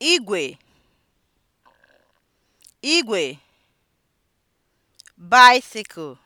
igwe igwe bicycle